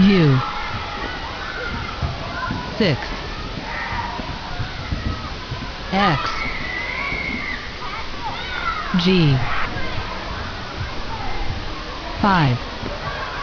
U six X G five